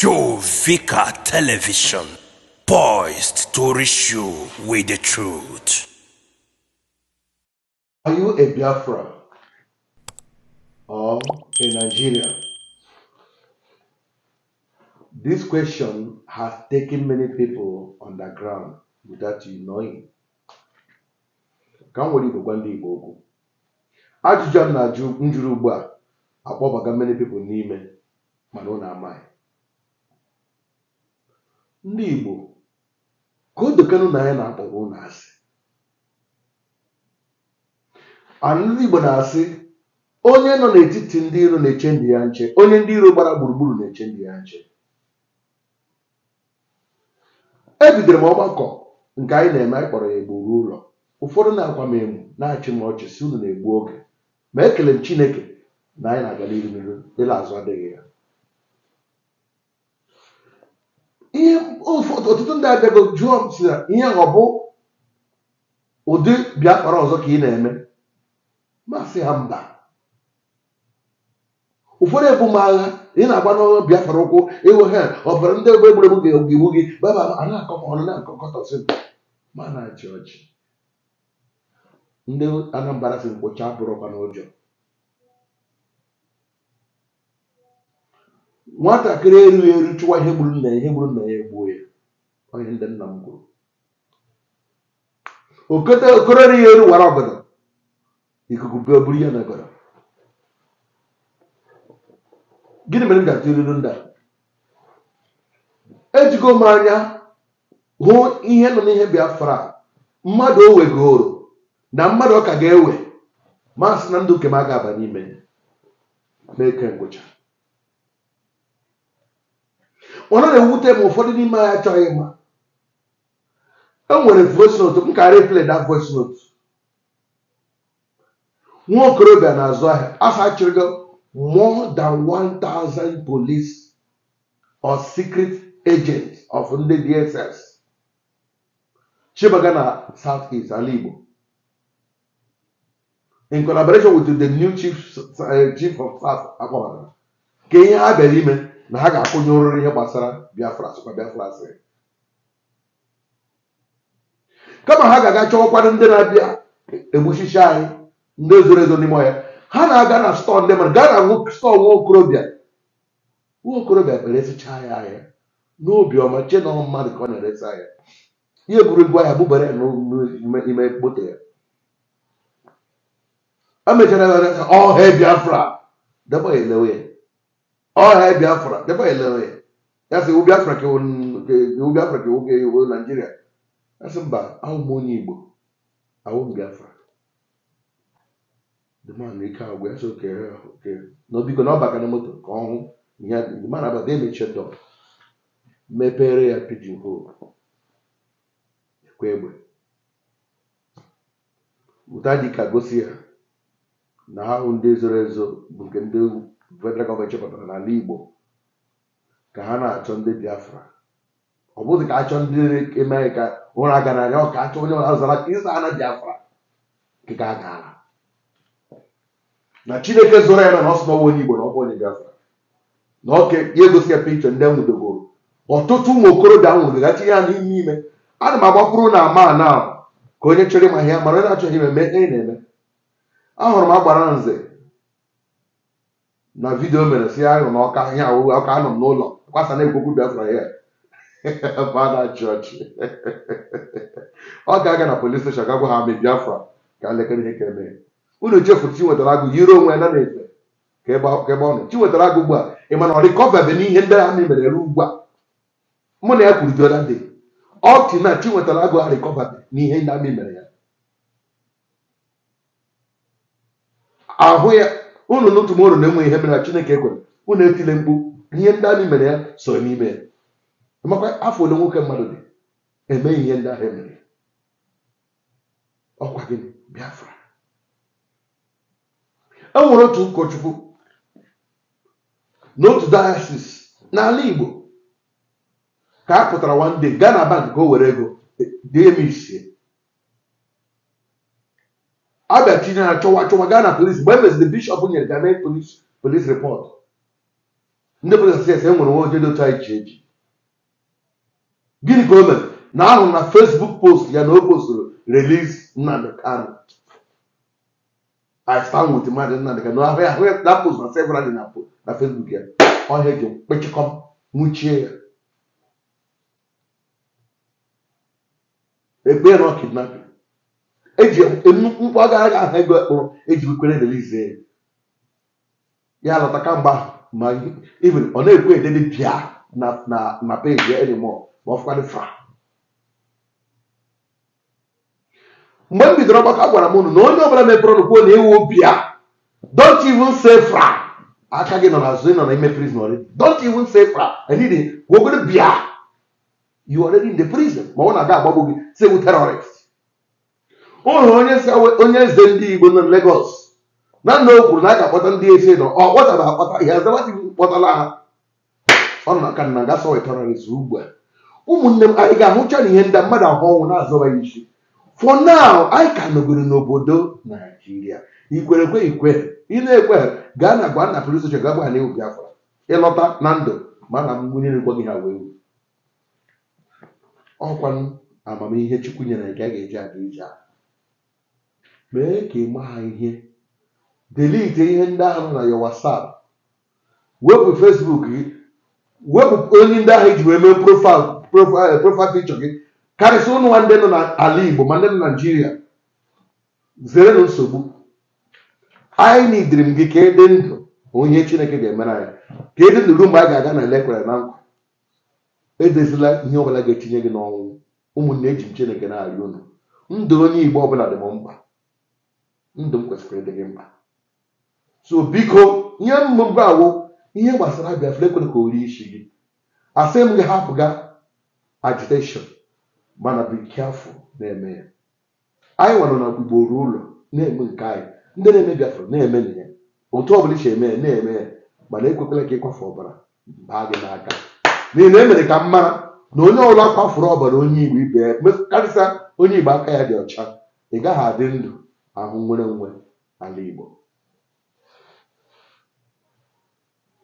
Joe Vicar Television, poised to reach you with the truth. Are you a Biafra or a Nigerian? This question has taken many people underground without you knowing. Ka m nwere igwegwa ndị Igbo okwu. Ajụjụ a m na-ajụ njụrụ ugbu a many people n'ime mana ọ na-amaghị. ndị Igbo ka o dokenụ na anyị na-akpọrọ ụnụ asị ndị Igbo na-asị onye nọ n'etiti ndị iro na-eche ndị ya nche onye ndị iro gbara gburugburu na-eche ndị ya nche ebidoro m ọgbakọ nke anyị na-eme anyị kpọrọ ya egburu ụlọ ụfọdụ na-akwa m emu na-achị m ọchị si unu na-egbu oge ma ekele m Chineke na anyị na-aga n'iru n'iru na azụ adịghị ya ọtụtụ ndị abịago jụọ m si na ihe ọ bụ ụdị Biafra ọzọ ka ị na-eme masị ha mba ụfọdụ ebu m agha ị na-agba n'ọrụ Biafra ụkwụ ịwụ ha ọbara ndị egbe egbu ga ewu gị baba a na-akọ ọnụ na-akọkọtọsị ma na-achị ọchị ndị Anambra si mkpocha abụrụkwa n'ụjọ nwatakịrị erughị eru chụwa ihe gburu nna ya ihe gburu nna ya egbuo ya onye ndị nna m kwuru okororihi elu wara obodo ikuku buru ihe na obodo gịnị mere m ji atụ ilu ndị ejigo m anya hụ ihe nọ n'ihe Biafra mmadụ o wegoro na mmadụ ọ ka ga-ewe masị na ndụ nke m a ga-aba n'ime n'eke ngwụcha onye na-ewute ma ụfọdụ n'ime anyị achọghị ịma enwere voice note m ka replay that voice note nwa okorobịa na-azụ ahịa asachịrịgo more than 1000 police or secret agents of ndị DSS chibaga na South East ala Igbo in collaboration with the new chief eh, chief of staff akpọbara ka ihe ha bịara ime na ha ga-akwụnye ụrụrụ ihe gbasara Biafra sịkwa Biafra sịrị kama ha ga-aga chọwakwanụ ndị na-abịa egbuchichi anyị ndị zoro ezo n'ime ọhịa ha na-aga na stọọ ndị mmadụ gaa na stọọ nwa okorobịa nwa okorobịa kpere esicha ya ahịa n'obiọma chee na mmadụ ka ọ na-eresi ahịa ihe egwuregwu ahịa bụbara ya n'ime mkpote ya emechara ọhịa Biafra debe elewe ya ọhịa Biafra debe elewe ya ya sị iwu Biafra ka iwu Naijiria asị mba ahụ m onye Igbo ahụ m Biafra ike ahụ gwa ya so n'obiko na ọbaka na moto ka ọ hụ ya abata emechie dọ mepere ya pidgin hole ekwe egbe ụta dị ka gosi ya na ahụ ndị zoro ezo bụ nke ndị federal gọọmenti chọpụtara n'ala Igbo ka ha na-achọ ndị Biafra ọ bụghị ka ha chọọ ndị eme ka ụra gara aga ọka achọ onye ọra zara ịza ana biafra nke a gaara na chineke zoro ya na na ọ sị na onye igbo na ọkwa onye biafra na ọka ya egosi ya pikchọ ndị nwudogoro ọtụtụ ụmụ okorobịa nwụrụgachi ya n'ime ime ana m agbakwuru na ama na ka onye chọrọ ịma ihe mara onye achọghị ime eme na-eme ahụrụ m agbara nze na vidiyo mere si ahụ na ọka ihe awụrụ ọka anọ m n'ụlọ kwasa na-ekwokwu biafra ya chọọchị ọ ga-aga na polis steshọn ga gwa ha me biafra ka elekere ihe ka eme unu chefurụ Chinwetara Agụ yiri onwe ya na efe ka ebe ọ nọ Chinwetara Agụ ugbu a ị mana ọ rịkọvabe n'ihe ndị ha mere ere ugbu a mụ na ya kwuru jioda dị ọ tị na Chinwetara Agụ ha rịkọvabe n'ihe ndị amị mere ya ahụ ya unu n'otu m na-enwe ihe mere Chineke ekwere unu etile mkpu ihe ndị amị mere ya so n'ime ya makwa afọ ole nwoke mmadụ dị eme ihe ndị ahụ emere ọkwa gị Biafra e nwere otu ụkọchukwu n'otu dayasis n'ala Igbo ka a pụtara nwanne gaa na bank ka o were ego dee m isie abịa tinye ya chọwa chọwa gaa na polisi mgbe e meziri bishọp nyere ga mee polisi report ndị polisi asị enwere nwa oje dị anyị ji eji gịnị ka o mere na ahụ na Fesbuk post ya na o posturu release Nnamdi Kanu I stand with Maazị Nnamdi Kanu ahụ na post na several na na Fesbuk ya ọhịa ji kpechikọm nwuchie ya ekpe na kidnapping eji mkpu agara ga ahụ ego ekpụrụ eji kwere release ya ya lọta kamgbe ahụ ma ọ na-ekwe edede bịa na peji ya anymore ma ọ fụkwadị mgbe m bidoro ọgbakọ agwara m unu na onye ọbụla mepere ọnụ kwuo na ewu obi ya don't even say fra aka gị nọ n'azụ azụ nọ na ime prison already don't even say fra Anyị e dị, gwogoro bịa you already in the prison ma ọ na-aga agbagbo gị sewu terrorist ụlọ onye onye eze ndị igbo nọ na Lagos na nna o kwuru na a ga-akpọta e oh, ndị eze nọ ọ kpọtara akpọta ihe azabatighị kpọtala ha ọ nọ na aka na ga wetara terrorist ugbu a ụmụnne m anyị ga-ahụcha na ihe ndị mmadụ ahụ ọnwụ na-azọbaghị isi for now anyị ka nọgoro n'obodo naijiria ikwere ekwe ikwe ị na-ekwe gaa na gwa na police ga gagba na afọ ịlọta na ndụ mana mmiri gwa gị ha wee ọkwa amamihe Chukwu nyere nke a ga-eji aga ije a mee ka ị maa ihe delete ihe ndị ahụ na ya WhatsApp wepụ Facebook gị wepụ onye ndị ahụ iji e wee mee profaịlụ profile picture gị karịsịa ụnụ nwa ndị nọ n'ala Igbo ma ndị nọ Naijiria na nsogbu anyị nidiri gị ka ị dị ndụ onye Chineke ga-emere anyị ka ị dị ndụ ruo mgbe anyị ga-aga na elekwere na nkwa edezila ihe ọbụla ga-etinye gị n'ọnwụ ụmụnne eji m Chineke na-arịọ unu ndụ onye Igbo ọbụla dị m mkpa ndụ m kwesịrị ịdị gị mkpa so biko nye mmụbụ awụ ihe gbasara Biafra ekwere ka o rie isi gị asị m gị hapụ gaa agitation mana bụ careful na-eme ya anyị nwere na ugboro ụlọ na-eme nke anyị ndị na-eme biafra na-eme na ya otu ọ bụla iche eme ya na-eme ya mana ekwekwala ka ịkwafe ọbara baa gị n'aka n'ihi na emere ka m mara na onye ọbụla kwafuru ọbara onye igbo ibe ya karịsịa onye igbo aka ya dị ọcha ị gaghị adị ndụ ahụ nwere nwe ala igbo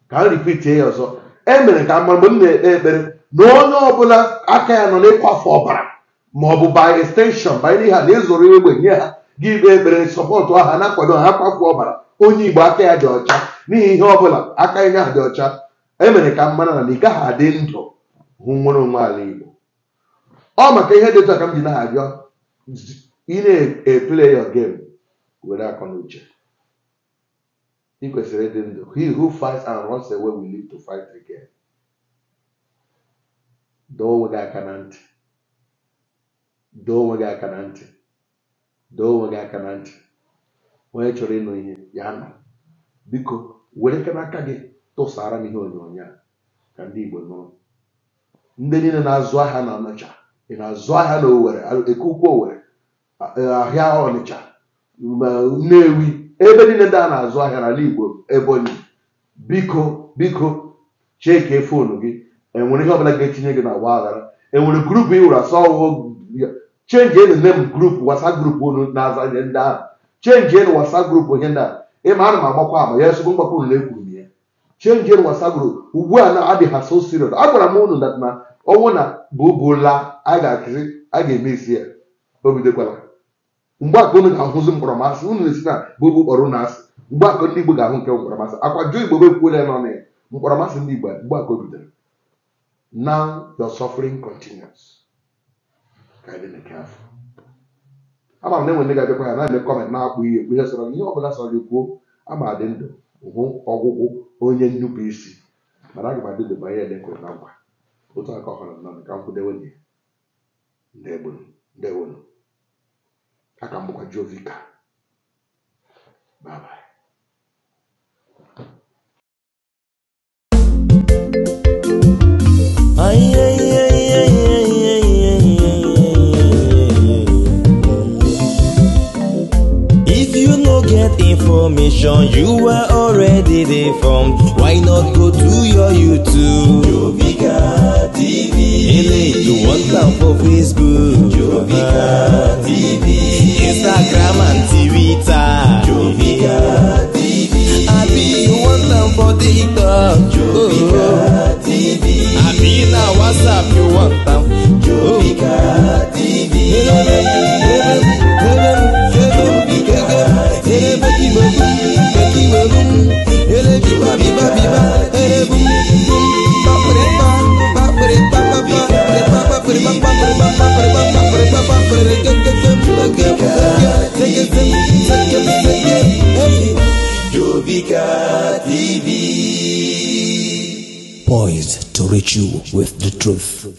ka m ripitie ya ọzọ emere ka m mara mgbe m na-ekpe ekpere na onye ọbụla aka ya nọ n'ịkwafu ọbara ma ọ bụ by extension banyere ha na egbe nye ha gị ikpe ekpere sọpọtụ aha na-akwado ha akwafu ọbara onye igbo aka ya dị ọcha n'ihi ihe ọbụla aka ya ha dị ọcha emere ka mmanụ na ị gaghị adị ndụ hụ nwere onwe ala igbo ọ maka ihe dị otu m ji na-arịọ ị na-eple your game were akọ na uche ị kwesịrị ịdị ndụ he who fights and runs away will live to fight again. doo onwe gị aka na ntị doo onwe gị aka na ntị doo onwe gị aka na ntị onye chọrọ ịnụ ihe ya nọ biko were aka n'aka gị tụsara m ihe onyonyo a ka ndị Igbo nụrụ ndị niile na-azụ ahịa na Ọnịcha ị na-azụ ahịa na Owerri eke ukwu Owerri ahịa Ọnịcha Nnewi ebe niile ndị a na-azụ ahịa n'ala Igbo Ebonyi biko biko cheke fon gị enwere ihe ọbụla ga-etinye gị na ọgba aghara enwere grupu ị wụrụ asọ ọwụwụ chenji enu nne m grupu WhatsApp grupu unu na-aza ihe ndị ahụ chenji enu WhatsApp grupu ihe ndị a ịma ana m agbakwa ama ya esogbo mgbakọ unu ekwuru m ya chenji enu WhatsApp grupu ugbu a na-adịghị ha so serious agwara m unu dat na ọnwụ na bụ bụla a ga-akụzi a ga-eme isi ya o bidokwala mgbe aka unu ga-ahụzi mkpọrọmasị unu na-esi na bụbụ kpọrọ na asị mgbe aka ndị Igbo ga-ahụ nke mkpọrọmasị akwa jụọ Igbo bekwuola ya nọ na ya mkpọrọmasị ndị Igbo mgbe aka o bidoro now your suffering continues ka anyị na-eke afọ ama na enwe ndị ga-abịakwa ya na-eme kọment na-akpụ ihe ekwu ihe sọrọ ihe ọbụla sọrọ gị ama adị ndụ hụ ọgwụgwụ onye nnupụ isi mana aga m adị ndụ banye ele kwere na nkwa otu aka ọ họrọ nọ ka m kwudewe dị ndewonu aka m bụkwa jovika bye destination you are already there from why not go to your YouTube Jovika TV ele you want am for Facebook Jovika TV Instagram and Twitter poised to reach you with the truth.